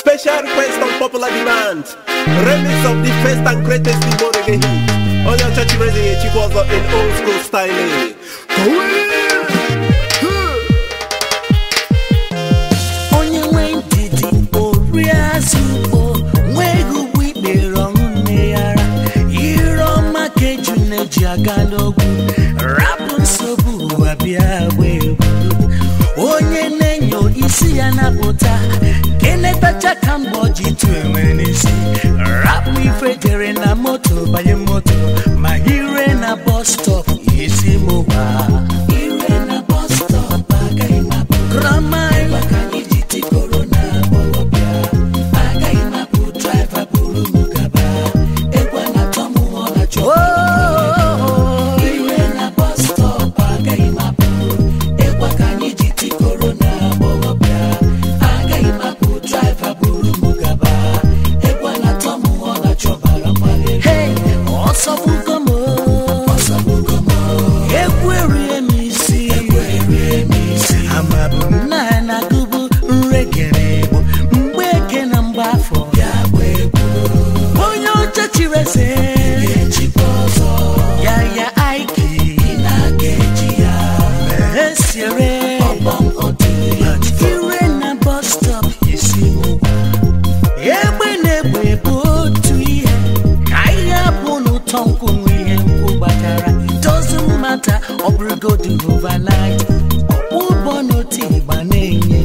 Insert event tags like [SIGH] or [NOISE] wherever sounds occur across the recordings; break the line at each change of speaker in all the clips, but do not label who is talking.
Special request on popular demand. Remix of the first and greatest Igbo reggae hit. On your church raising a chikwazo in old school styling. Onye
nwe ndidi oriazụ Igbo nweghị ugbo ikpere ọṅụ nne yara ire ọma ka eju na-eji aga cheka mgbe ji tu enwe in a motor, jere a motor, my moto in a bus stop, isi mụwa light ụgbọ n'otu ịgba na-enye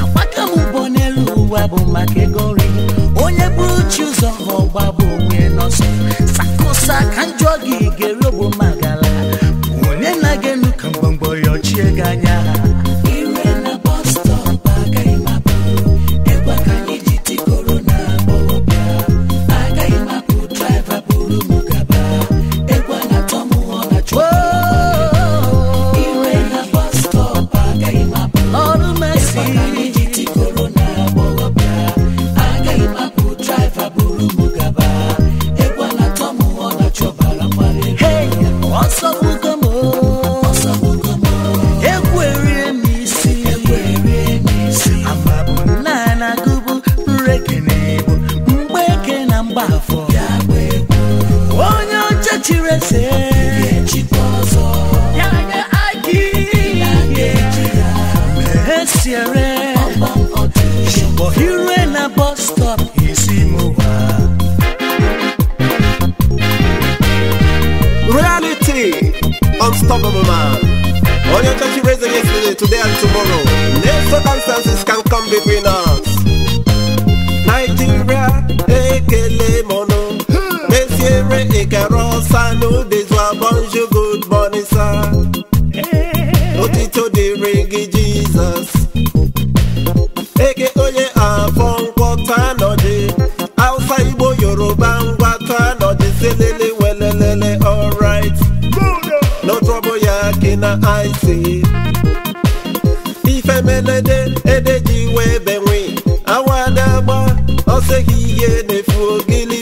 agbaka m ụgbọ n'elu ụwa bụ maka ego nri onye bụrụ chi ụzọ ha ọgba bụ onwe n'ọsọ sakosa ka njọ gị ga-eru bụ chirese
reality unstoppable man your touchy raising yesterday today and tomorrow no circumstances can come between us the reggae Jesus eke onye afọ nkwọta anọdị Hausa Igbo Yoruba ngwata anọdị selele welelele alright no trouble ya ke na ise ifemelede ede ji wee benwe awa na-agba ọseghi ihe na-efu ogili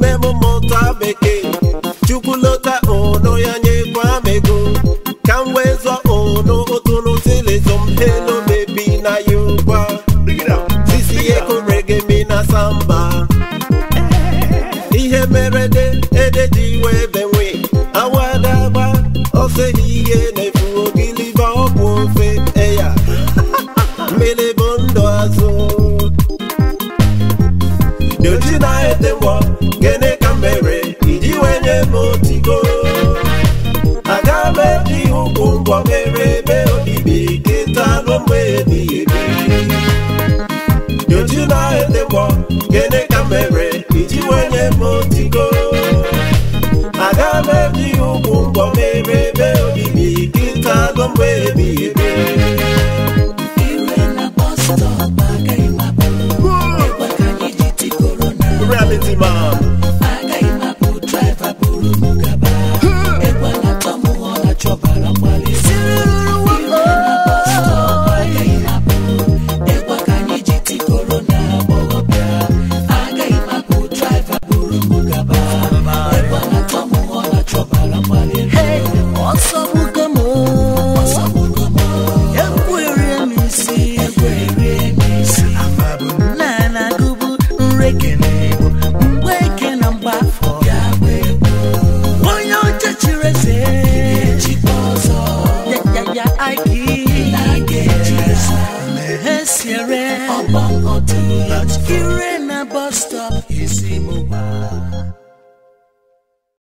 n'ime m mụta bekee chukwu na sisi mi na samba ihe mere ede ji wee benwe awadagba oseghi nefu ogiliba ọbụ ofe eya [LAUGHS] mmiri bụ ndụ ete mbọ gịnị ka mere iji wee nye m otigo aga m eji ụkwụ ngwọ mere ebe obibi kịta nụ mgbe ebighị ebi yoji na-edekpọ gịnị ka mere iji wee nye m otigo aga m eji ụkwụ ngwọ mere ebe obibi kịta nụ mgbe ebighị ebi
ya aiki mesiere ọgbọ ọtún ire na bus stop isi mo wá.